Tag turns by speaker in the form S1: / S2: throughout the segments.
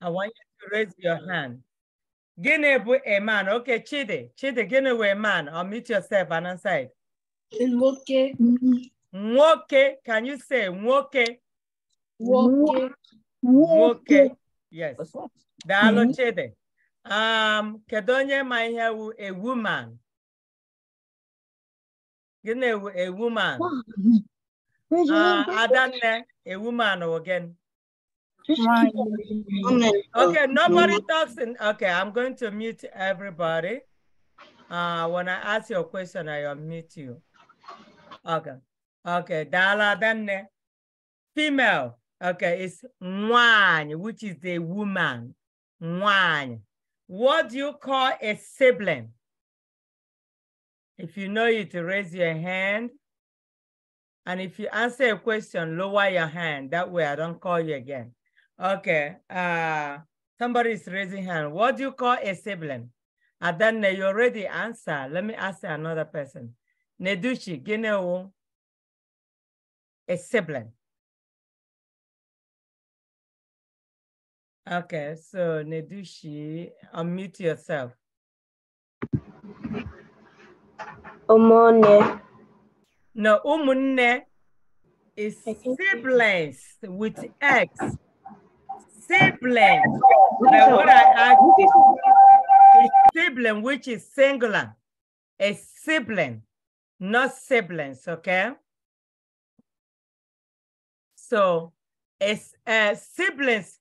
S1: I want you to raise your hand. Gịnị bụ a man? Okay, Chidi. Chidi, gịnị bụ a man? meet yourself and answer
S2: Nwoke.
S1: Nwoke. Can you say nwoke? Nwoke.
S2: Nwoke.
S1: Yes. Daalụ mm-hmm. Chidi. Um, kedu onye ma ihe wu a woman? Gịnị wu a woman? Uh, Adanne, a woman again.
S2: Oh, okay, nobody
S1: talks in, okay, I'm going to mute everybody. Uh, when I ask your question, I unmute you. Okay, okay, Dala Danne, female, okay, it's one which is the woman, one What do you call a sibling? If you know it, raise your hand. And if you answer a question, lower your hand. That way I don't call you again. Okay. Uh, somebody is raising hand. What do you call a sibling? And then you already
S2: answer. Let me ask another person. Nedushi, Gineo, a sibling. Okay, so Nedushi, unmute yourself.
S1: Umone. No, umune is siblings with X sibling.
S2: Now, I,
S1: sibling, which is singular,
S2: a sibling, not siblings, okay? So, it's uh, siblings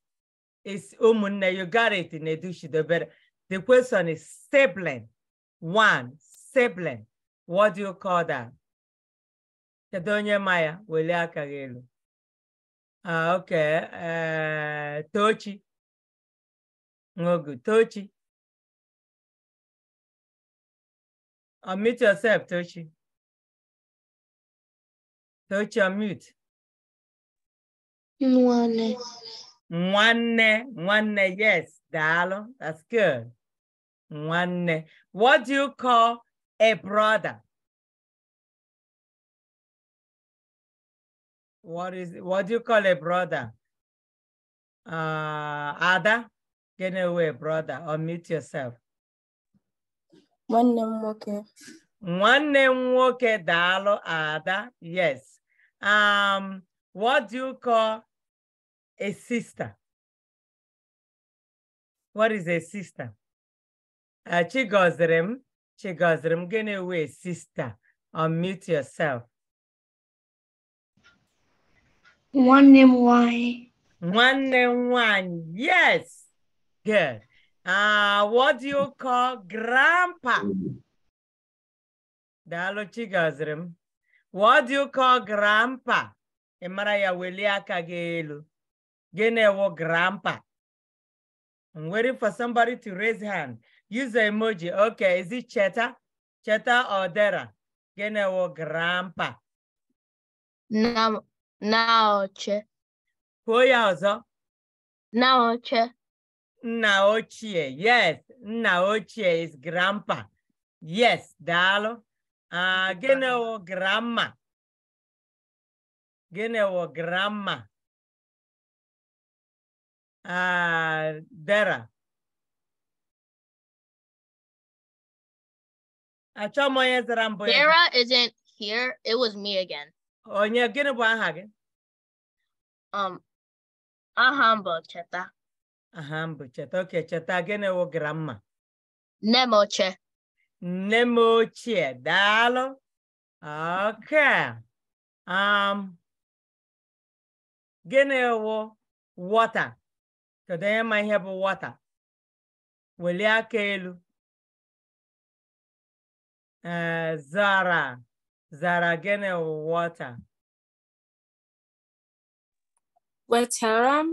S1: is umune. Oh, you got it in Edushido, but the question is sibling. One sibling. What do you call that? Kedonya Maya,
S2: Weliakagelu. Ah, ok. Eh, Tochi. Ngogu, Tochi. Unmute yourself, Tochi. Tochi, unmute. Nwane. Nwane, Nwane, yes, Dalo. That's good. Nwane. What do you call a brother? what is what do you call a brother? Uh,
S1: Ada, get away, brother, unmute yourself. One name okay. One name nwoke daalụ Ada. Yes.
S2: Um, what do you call a sister? What is a sister? Uh, Chigozrim, Chigozrim, get away, sister. Unmute yourself.
S1: nwanne m nwanyị nwanne m nwanyị yes good uh, what do you call grandpa daalụ m what do you call grandpa ị mara ya welie aka gị elu gịnị wụ grandpa I'm waiting for somebody to raise hand. Use the emoji. Okay, is it Cheta? Cheta or Dera? Gịnị wụ grandpa?
S2: Naoche.
S1: Kwuo ya ọzọ.
S2: Naoche.
S1: Yes, Naoche is grandpa.
S2: Yes, Dalo. Uh, ah, gịnị grandma? Gịnị wụ grandma? Uh, Dara. Achọ isn't here. It was me again. onye gịnị bụ aha gị um aha m bụ cheta
S1: aha m bụ cheta oke cheta gịnị wụ gramma
S2: nne m ochie
S1: nne m ochie daalụ oke um
S2: gịnị wụ wọta kedu onye ma ihe bụ wọta welie aka elu ee eh, zara Zaragene water. Water.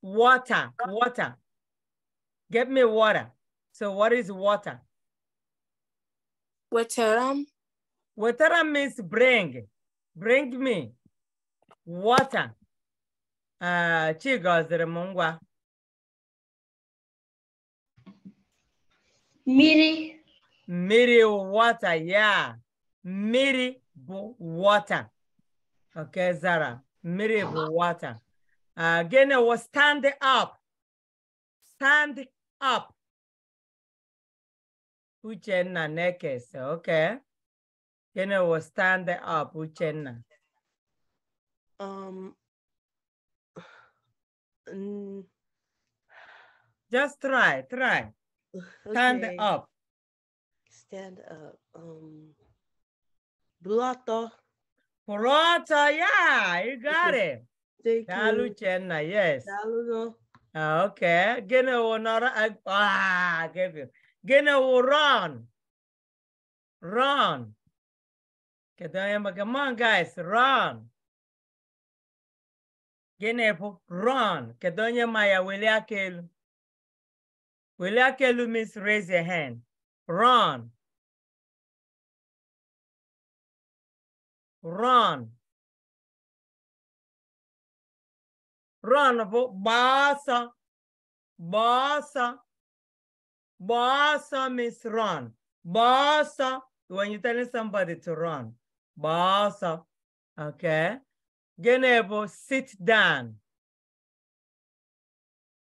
S1: Water, water. Get me water. So what is water? Waterum. Waterum means bring. Bring me water. Uh, ah, chigozere mungwa.
S2: Miri.
S1: Miri water, yeah mmiri water okay zara mmiri bụ water uh, gịnị wụ stand up stand up uchenna na-ekesa okay gịnị was stand up uchenna um, um, just try try stand okay. up stand up um buru ọtọ yaa ọtọ ya you got it daalụ Uchenna yes daalụ ah, okay gịnị wụ nọrọ ah gịnị wụ run
S2: run kedu onye ma come on guys run gịnị bụ run kedu onye ma ya welie aka elu welie aka elu means raise your hand run run. Run for Basa. Basa. Basa means run.
S1: Basa, when you're telling somebody to run. Basa. Okay. Genebo, sit down.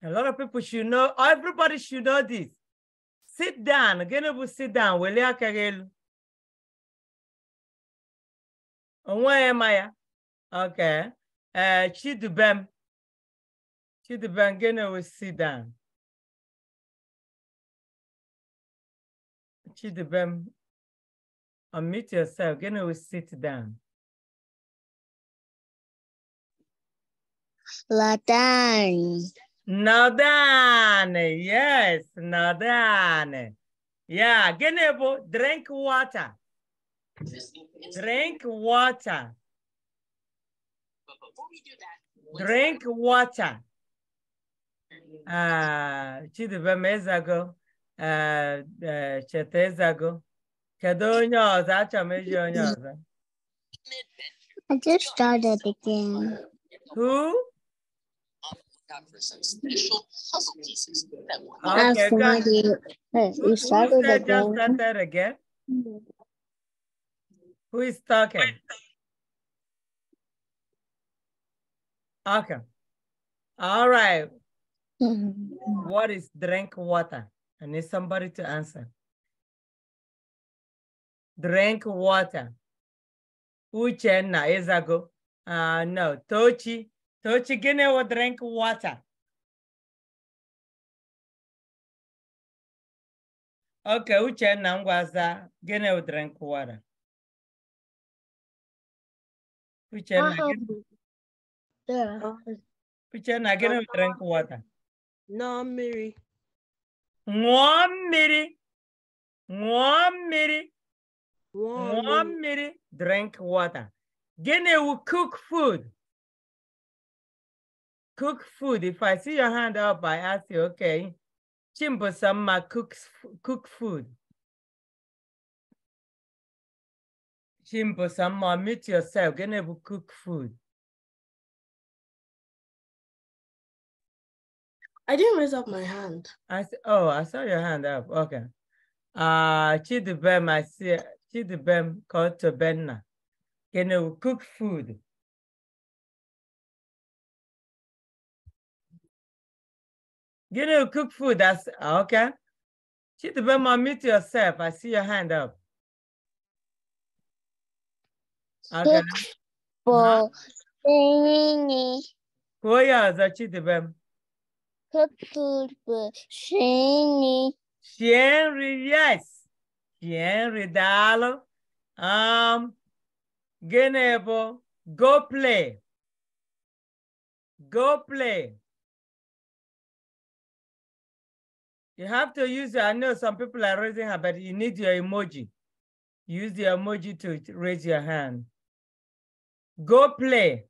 S1: A lot of people should know, everybody should know this. Sit down. Genebo, sit down.
S2: Wele akagelu. onweghị ma ya oke ee eh, chidubem chidubem gịnị wụ sit down chidubem unmute yourself gịnị wụ sit down Ladan.
S1: Nadan, yes, Nadan. Yeah, gịnị bụ drink water. Drink water. drink water. Ah, Chidibe Mezago, Chetezago. onye ọzọ? Achọrọ onye ọzọ.
S2: I just started the game. Who? for some special puzzle pieces that one. Okay, you started again. Started
S1: mm. again? Who is talking? Okay. All right. Mm-hmm. what is drink water? I need somebody to answer. Drink water. Uchenna is a
S2: go. Uh, no, Tochi. Tochi Guinea will drink water. Okay, Uchenna was a Guinea will drink water. Pucha, na gịnị ṅụọ mmiri ṅụọ
S1: mmiri mmiri drink water gịnị wu cook food cook food if i see your hand up i ask you okay chimbosamma cooks cook food
S2: Kimbo some meet yourself. Can to cook food. I didn't raise up my hand. I oh, I saw your hand up. Okay. Uh Chidibem, I see Chidibem called to Benna. Can you cook food? Can you cook food? That's okay. I meet yourself. I see
S1: your hand up. Futbol, seni Koja, začnite bem. Futbol, yes. Sien ridalo. Um, genebo,
S2: go play. Go play. You have to use, I know some people are raising her, but you need
S1: your emoji. Use the emoji to raise your hand go play.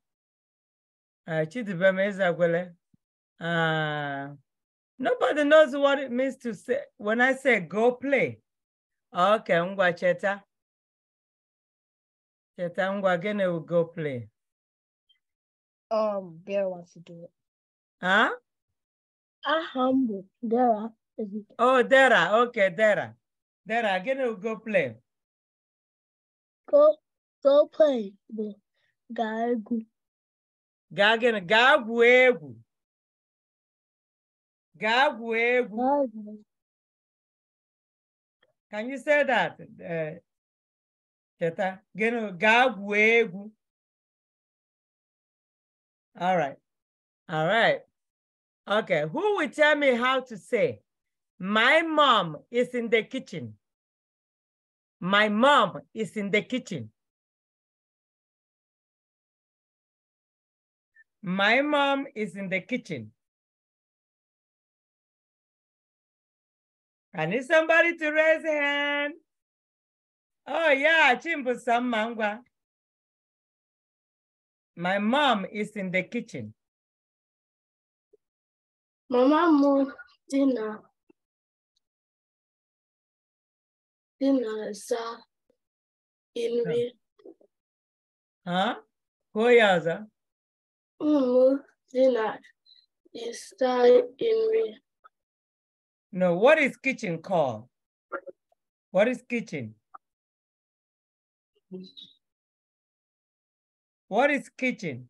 S1: Uh, ah, Chidibeme Isakwele. Uh, ah, nobody knows what it means to say when I say go play.
S2: Okay, ngwa cheta. Cheta ngwa gene will go play. Um, Vera wants to do it. Huh? Ahambu, Dara.
S1: Oh, Dara. Okay, Dara. Dara, gene
S2: will go play. Go, go play. Gagu. egwu gaa gịnị gaa gwuo egwu can you say that cheta eh, gịnị gaa gwuo all right all right okay who will tell me how to say my mom is in the kitchen my mom is in the kitchen My mom is in the kitchen. I need somebody to raise a hand. Oh yeah, chimbu Mangwa. My mom is in the kitchen. Mama mo dinner. Dinner, sir. Uh, in Huh? Who is that? dinner is in No, what is kitchen called? What is kitchen? What is kitchen?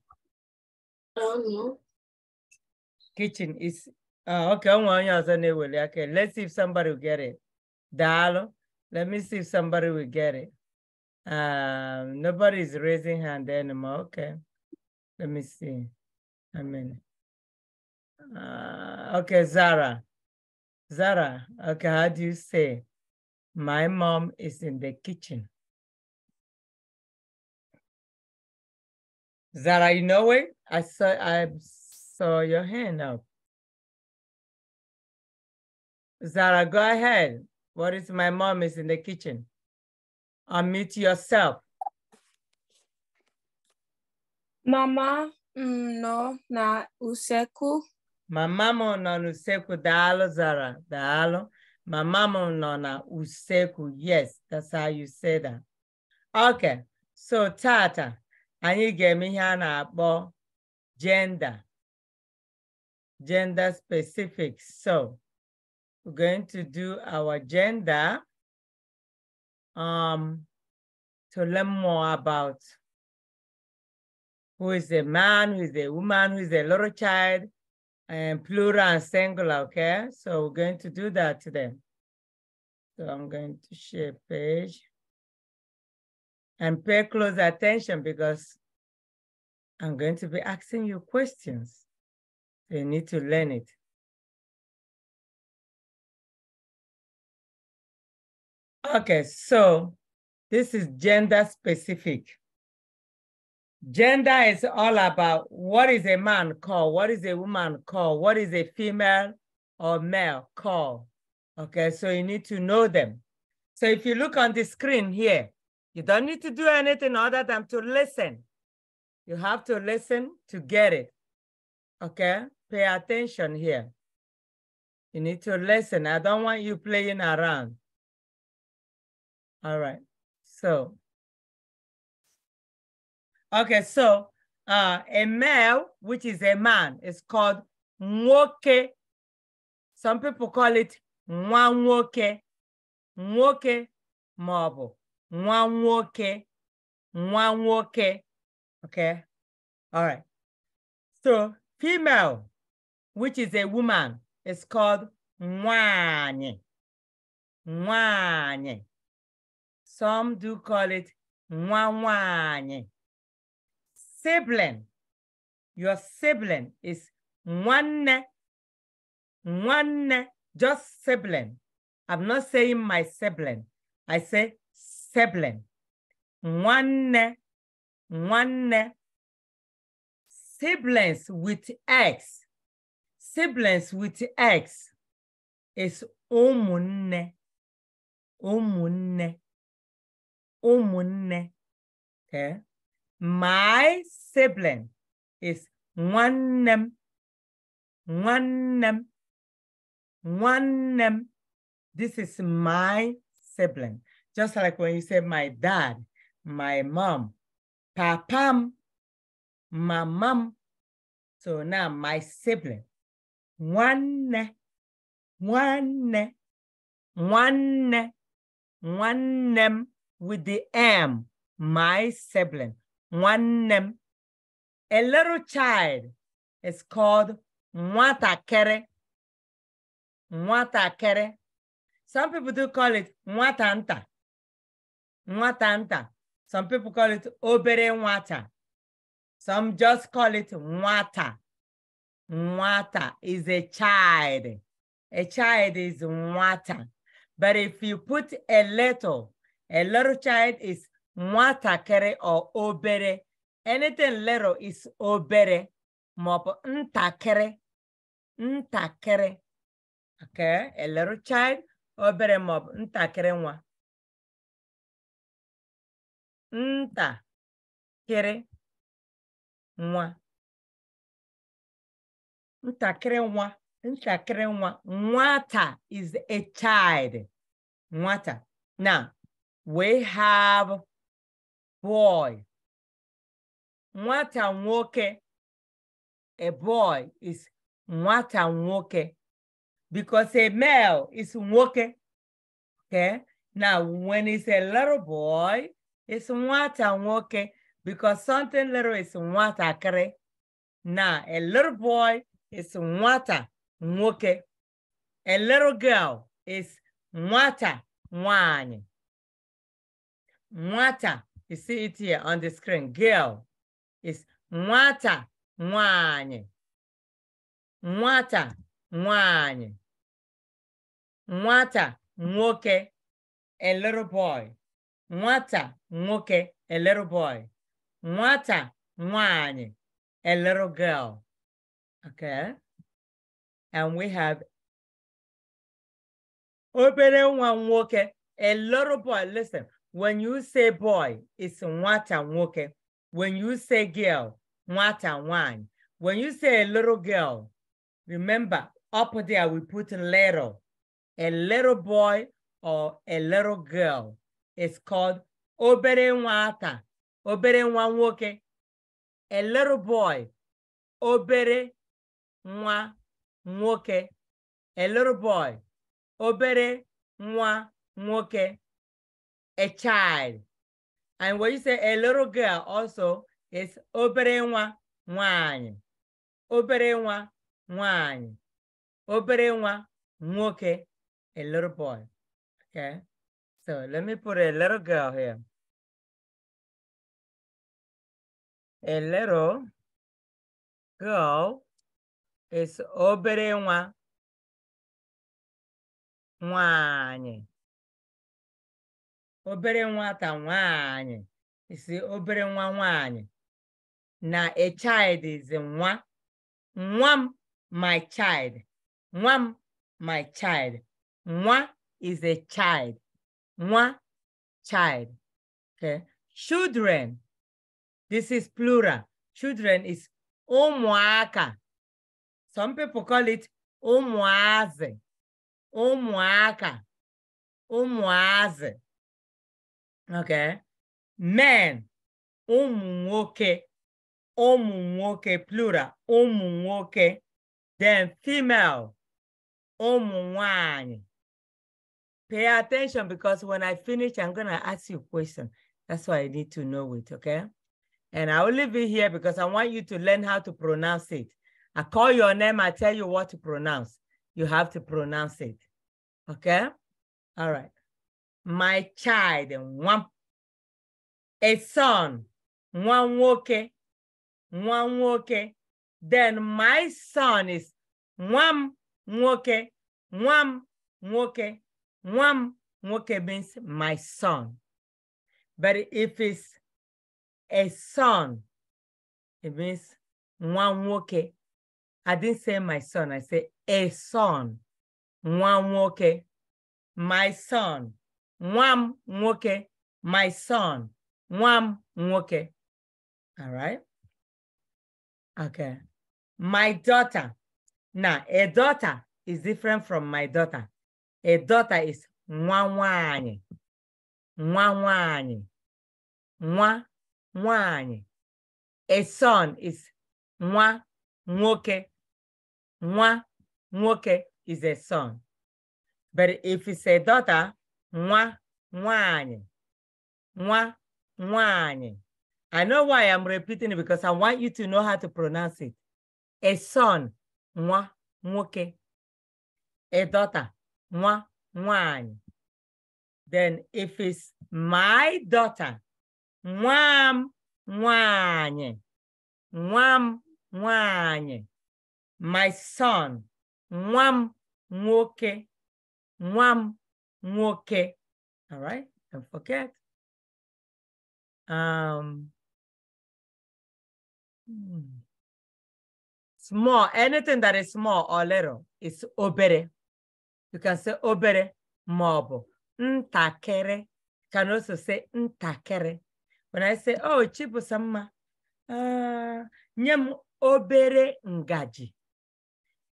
S2: I don't know. Kitchen is
S1: uh, okay. I'm going to Okay, let's see if somebody will get it. Dalo, let me see if somebody will get it. Um, is raising hand anymore. Okay. Let me see. I mean, uh,
S2: okay, Zara. Zara, okay, how do you say? My mom is in the kitchen. Zara, you know it? I saw I saw your hand up.
S1: Zara, go ahead. What is my mom is in the kitchen? Unmute yourself.
S2: Mama m mm, nọ n'usekwu.
S1: Mama m nọ n'usekwu, daalụ Zara, daalụ. Mama m nọ n'usekwu, yes, that's how you say that. Okay, so tata, anyị ga-eme ihe a na-akpọ gender, gender
S2: specific. So, we're going to do our gender um, to learn more about
S1: who is a man, who is a woman, who is a little child, and plural and singular, okay? So we're going to do that today. So I'm going to share page and pay close attention because
S2: I'm going to be asking you questions. You need to learn it. Okay, so this is gender specific.
S1: Gender is all about what is a man called, what is a woman called, what is a female or male called. Okay, so you need to know them. So if you look on the screen here, you don't need to do anything other than to listen. You have to listen to get it. Okay, pay attention here.
S2: You need to listen. I don't want you playing around. All right, so Okay,
S1: so uh, a male, which is a man, is called nwoke. Some people call it nwa nwoke, marble, maọbụ nwa Okay, all right. So female, which is a woman, is called nwanyị, nwanyị. Some do call it nwa sibling. Your sibling is one, one, just sibling. I'm not saying my sibling. I say sibling. One, one, siblings with X. Siblings
S2: with X is umunne, umunne, umunne. Okay. My
S1: sibling is one nwannem, one nwannem. This is my sibling. Just like when you say my dad, my mom, papam,
S2: my mom. So now my sibling. One, one, one,
S1: one, with the M, my sibling name, a little child is called nwatakere. Kere. Some people do call it nwatanta. Nwatanta. Some people call it obere Mwata. Some just call it Mwata. Mwata is a child. A child is Mwata. But if you put a little, a little child is nwatakịrị ọ obere anything little is obere maọbụ ntakịrị ntakịrị
S2: okay a little child obere maọbụ ntakịrị nwa ntakịrị nwa ntakịrị nwa ntakịrị nwa nwata is a child nwata na
S1: we have boy nwata nwoke a boy is nwata nwoke because a male is nwoke okay now when it's a little boy it's nwata nwoke because something little is nwata nwatakịrị now a little boy is nwata nwoke a little girl is nwata nwanyị nwata you see it here on the screen. Girl is nwata nwanyị. Nwata nwanyị. Nwata nwoke a little boy. Nwata nwoke a little boy. Nwata
S2: nwanyị a little girl. Okay. And we have obere nwa nwoke a little
S1: boy. Listen, When you say boy, it's nwata nwoke. When you say girl, nwata nwanyi. When you say a little girl, remember up there we put little. A little boy or a little girl is called obere nwata, obere nwa nwoke. A little boy, obere nwa nwoke. A little boy, obere nwa nwoke. a child. And when you say a little girl also is obere nwa nwanyị. Obere nwa nwanyị.
S2: Obere nwa nwoke, a little boy. Okay? So let me put a little girl here. A little girl is obere nwa nwanyị. obere nwata nwanyị si obere nwa nwanyị
S1: na a child is nwa nwa m my child nwa m my child nwa is a child nwa child okay children this is plural children is ụmụaka some people call it
S2: ụmụazị ụmụaka ụmụazị okay men ụmụ
S1: nwoke plural ụmụ then female ụmụ pay attention because when I finish, I'm going to ask you a question. That's why I need to know it, okay? And I will leave it here because I want you to learn how to pronounce it. I call your name, I tell you what to pronounce. You have to pronounce it, okay? All right my child one, a son one woke, one woke. then my son is one woke, one woke, one woke. means my son but if it's a son it means one woke. I didn't say my son I said a son one woke. my son nwa m nwoke my son nwa m nwoke all right okay my daughter Na a daughter is different from my daughter a daughter is nwa nwanyị
S2: nwa nwanyị nwa nwanyị a son is nwa nwoke nwa nwoke
S1: is a son but if it's a daughter nwa nwanyị nwa nwanyị I know why I'm repeating it because I want you to know how to pronounce it. A son, nwa nwoke. A daughter, nwa nwanyị. Then if it's my daughter, nwam nwanyị. m nwanyị. My son, m
S2: nwoke. m. nwoke. All right, don't forget. Um, hmm. small, anything that is small or little is
S1: obere. You can say obere maọbụ ntakịrị. Can also say ntakere. When I say, oh, Chibusamma, uh, nye m obere ngaji.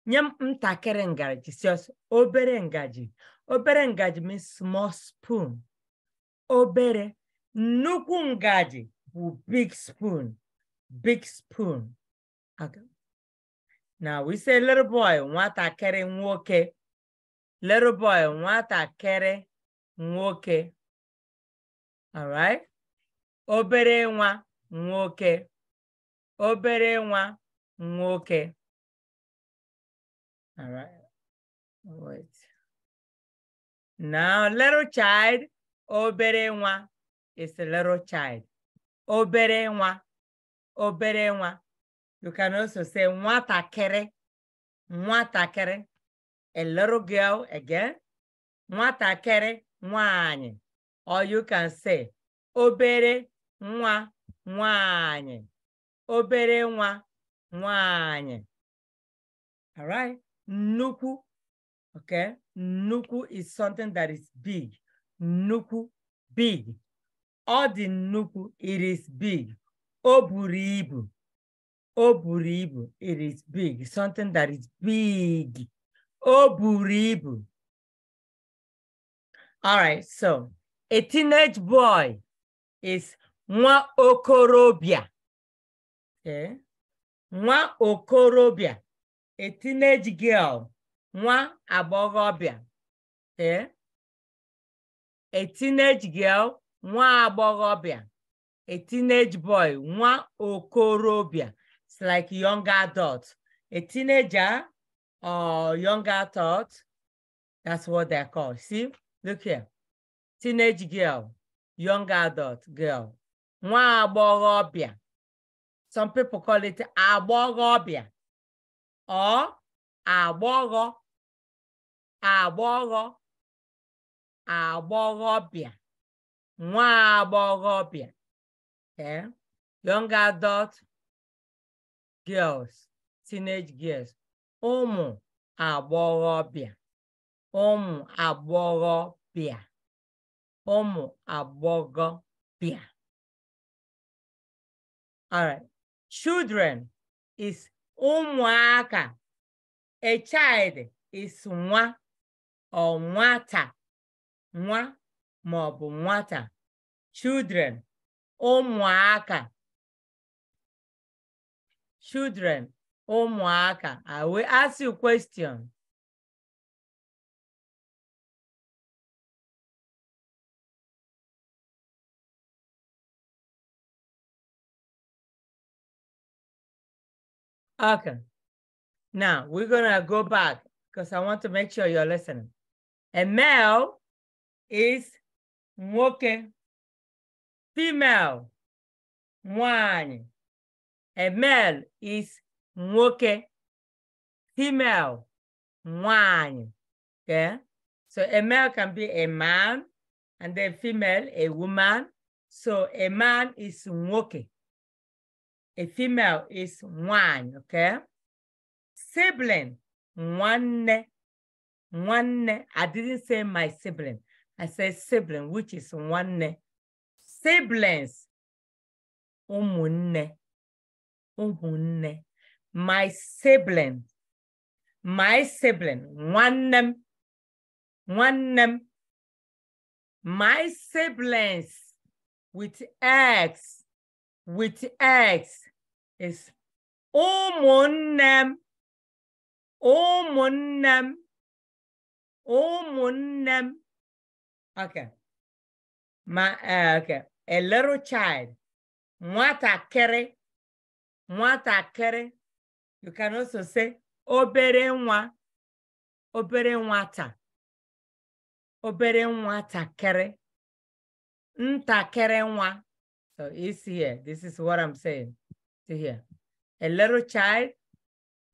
S1: Nye m ngaji, si obere ngaji. obere ngaji means small spoon obere nnukwu ngaji bụ big spoon big spoon now we say little boy nwatakịrị nwoke little boy nwatakịrị nwoke
S2: alright obere nwa nwoke obere nwa nwoke alright Now, little child,
S1: obere nwa is a little child. Obere nwa, obere nwa. You can also say nwatakịrị, nwatakịrị. A little girl again. Nwatakịrị nwanyị. Or you can say obere nwa nwanyị. Obere nwa nwanyị. All right. Nnukwu Okay. Nuku is something that is big. Nuku, big. All the nuku, it is big. Oburibu. Oburibu, it is big. Something that is big.
S2: Oburibu. All right, so a teenage boy is nwa okorobia.
S1: Okay. Nwa okorobia, a teenage girl nwa agbọghọbịa e, a teenage girl nwa agbọghọbịa a teenage boy nwa okorobịa it's like young adult a teenager or young adult that's what they called see look here teenage girl young adult girl nwa agbọghọbịa some
S2: people call it agbọghọbịa or agbọghọ agbọghọ agbọghọbịa nwa agbọghọbịa okay? Eh, young adult girls teenage girls ụmụ agbọghọbịa ụmụ agbọghọbịa ụmụ agbọghọbịa all right children is ụmụaka A child is nwa or nwata, nwa ma ọ bụ nwata. Children, ụmụaka. Children, ụmụaka. I will ask you question. Now we're gonna go back because I want to make sure you're listening. And male is nwoke. Female, one. And male is nwoke. Female,
S1: one. Okay? So a male can be a man, and then female, a woman. So a man is nwoke. A female is one, okay? sibling, one, one. I didn't say my sibling. I said sibling, which is one. Siblings, umunne, umunne. My sibling, my sibling,
S2: one, one. My siblings with X, with X is umunne. ụmụnne m ụmụnne m okay my uh, eh, okay a little child nwatakịrị
S1: nwatakịrị you can also say obere nwa obere nwata obere nwatakịrị ntakịrị nwa so it's here this is what i'm saying see here a little child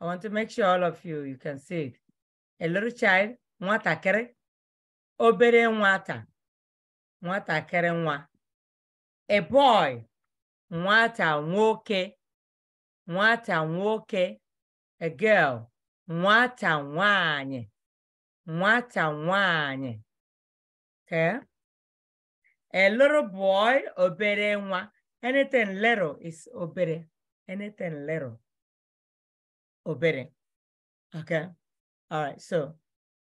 S1: I want to make sure all of you, you can see it. A little child, kere, obere nwata, kere nwa. A boy, nwata nwoke, nwata nwoke. A girl, nwata nwanyị, nwata nwanyị. Okay? A little boy, obere nwa. Anything little is obere. Anything little. obeying. Okay. All right. So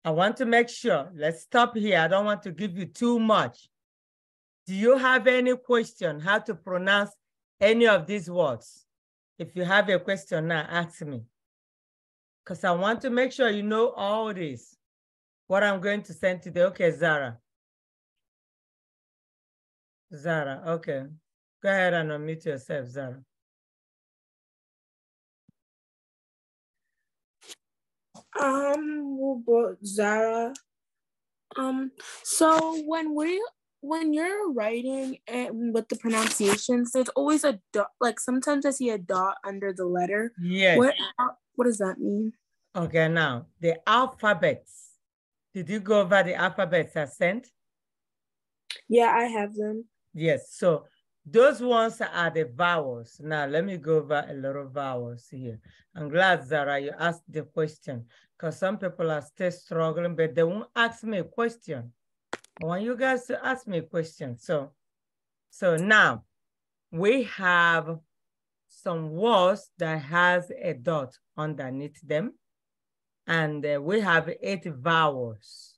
S1: I want to make sure, let's stop here. I don't want to give you too much. Do you have any question how to pronounce any of these words? If you have a question now, ask me. Because I want to make sure you know all
S2: this. What I'm going to send today. Okay, Zara. Zara, okay. Go ahead and unmute yourself, Zara. Um, Zara? Um, so when we when
S1: you're writing and with the pronunciations, there's always a dot. Like sometimes I see a dot under the letter. Yes. What what does that mean? Okay, now the alphabets. Did you go over the alphabets I sent?
S2: Yeah, I have them.
S1: Yes. So those ones are the vowels. Now, let me go over a lot of vowels here. I'm glad, Zara, you asked the question because some people are still struggling, but they won't ask me a question. I want you guys to ask me a question. So, so now we have some words that has a dot underneath them. And uh, we have eight vowels.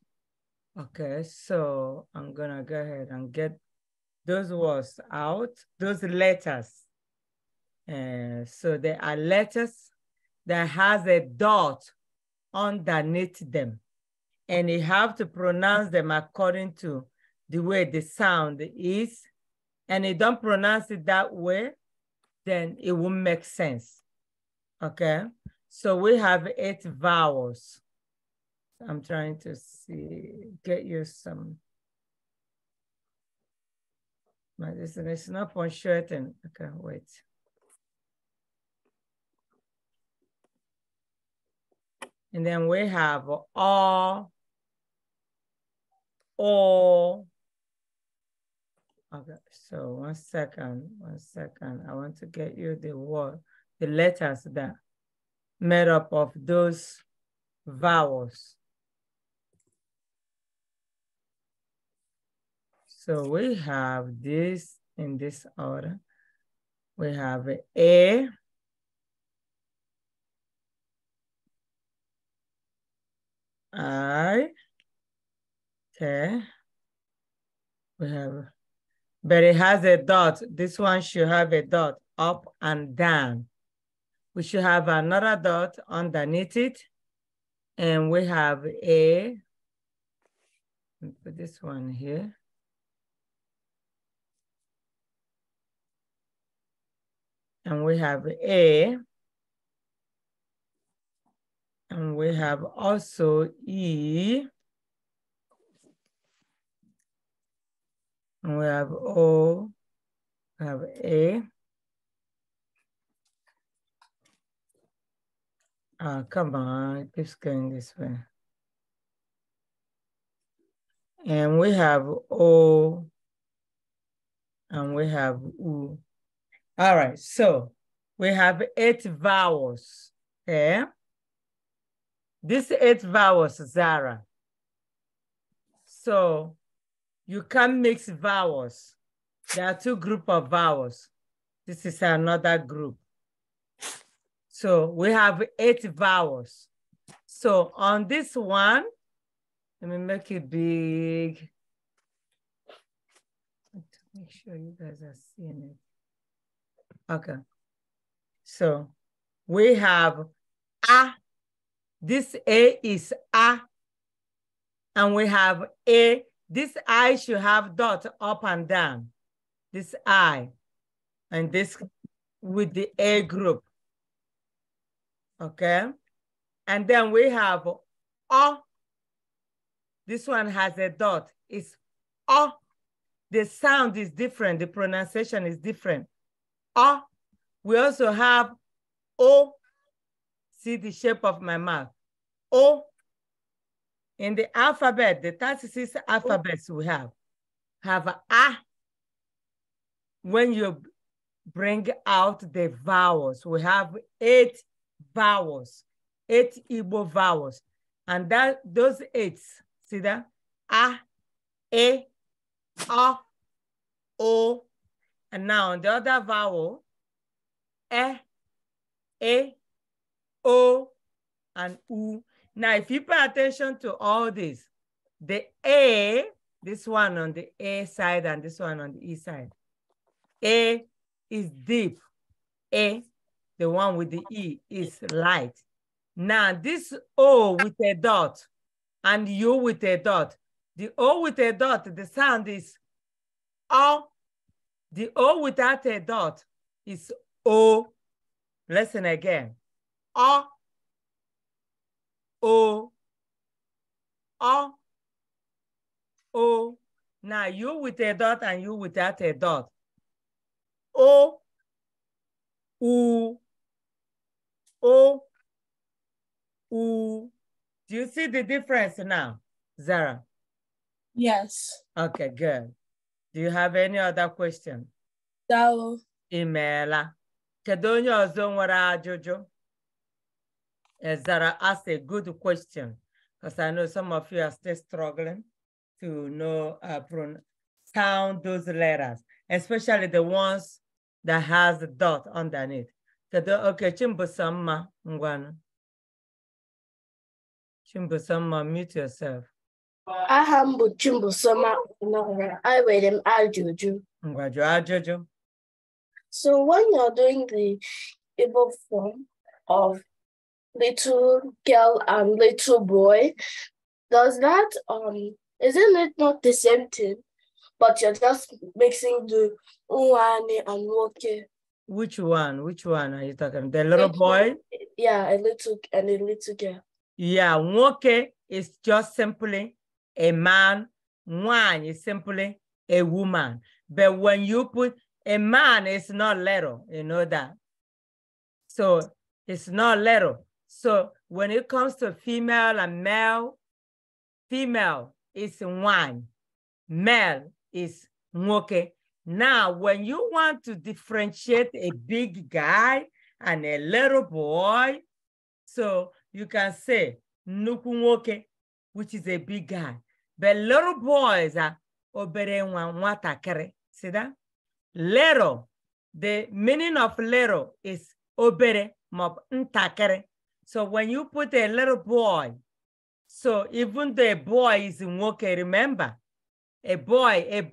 S1: Okay, so I'm gonna go ahead and get those words out, those letters. Uh, so there are letters that has a dot underneath them. And you have to pronounce them according to the way the sound is. And you don't pronounce it that way, then it won't make sense. Okay? So we have eight vowels. I'm trying to see, get you some. My is not punctuating. Okay, wait. And then we have all, all. Okay, so one second, one second. I want to get you the word, the letters that made up of those vowels. So we have this in this order. We have A, I, okay. We have, but it has a dot. This one should have a dot up and down. We should have another dot underneath it. And we have A, put this one here. and we have A, and we have also E, and we have O, we have A. Ah, come on, keep going this way. And we have O, and we have U. All right, so we have eight vowels, okay? Eh? These eight vowels, Zara. So you can mix vowels. There are two group of vowels. This is another group. So we have eight vowels. So on this one, let me make it big.
S2: Make sure you guys are seeing it.
S1: Okay. So we have a. This a is a. And we have a. This I should have dot up and down. This I. And this with the A group. Okay. And then we have O. This one has a dot. It's O. The sound is different. The pronunciation is different. Ah, we also have O. See the shape of my mouth. O. In the alphabet, the 36 alphabets we have, have a, when you bring out the vowels. We have eight vowels, eight Igbo vowels. And that those eight, see that? A, E, O, O, and now the other vowel, e, e, o, and u. Now, if you pay attention to all this, the a, this one on the a side and this one on the e side, a is deep, a, the one with the e is light. Now, this o with a dot and u with a dot, the o with a dot, the sound is o the O without a dot is O. Listen again. O. O. O. O. Now you with a dot and you without a dot. O.
S2: U.
S1: O. U. Do you see the difference now, Zara? Yes. Okay, good. Do you have any other question? Daalụ. Ị meela. Kedu onye ọzọ asked a good question because I know some of you are still struggling to know uh, sound those letters, especially the ones that has the dot underneath. Kedu okay, Chimbusama Ngwana. Chimbusama, mute yourself.
S2: Aha m bụ Chimbusoma enwere m
S1: ajụjụ ngwa jụọ ajụjụ so when you're doing the
S2: Igbo form of little girl and little boy does that um isn't it not the same thing but you're
S1: just mixing the one and woke which one which one are you talking the little boy yeah a little and a little girl yeah woke is just simply a man one is simply a woman. But when you put a man, it's not little, you know that. So it's not little. So when it comes to female and male, female is one, male is moke. Now, when you want to differentiate a big guy and a little boy, so you can say nuku which is a big guy. The little boys are ah, obere nwa nwatakịrị. See that? Little. The meaning of little is obere ma ntakịrị. So when you put a little boy, so even though a boy is nwoke, remember, a boy, a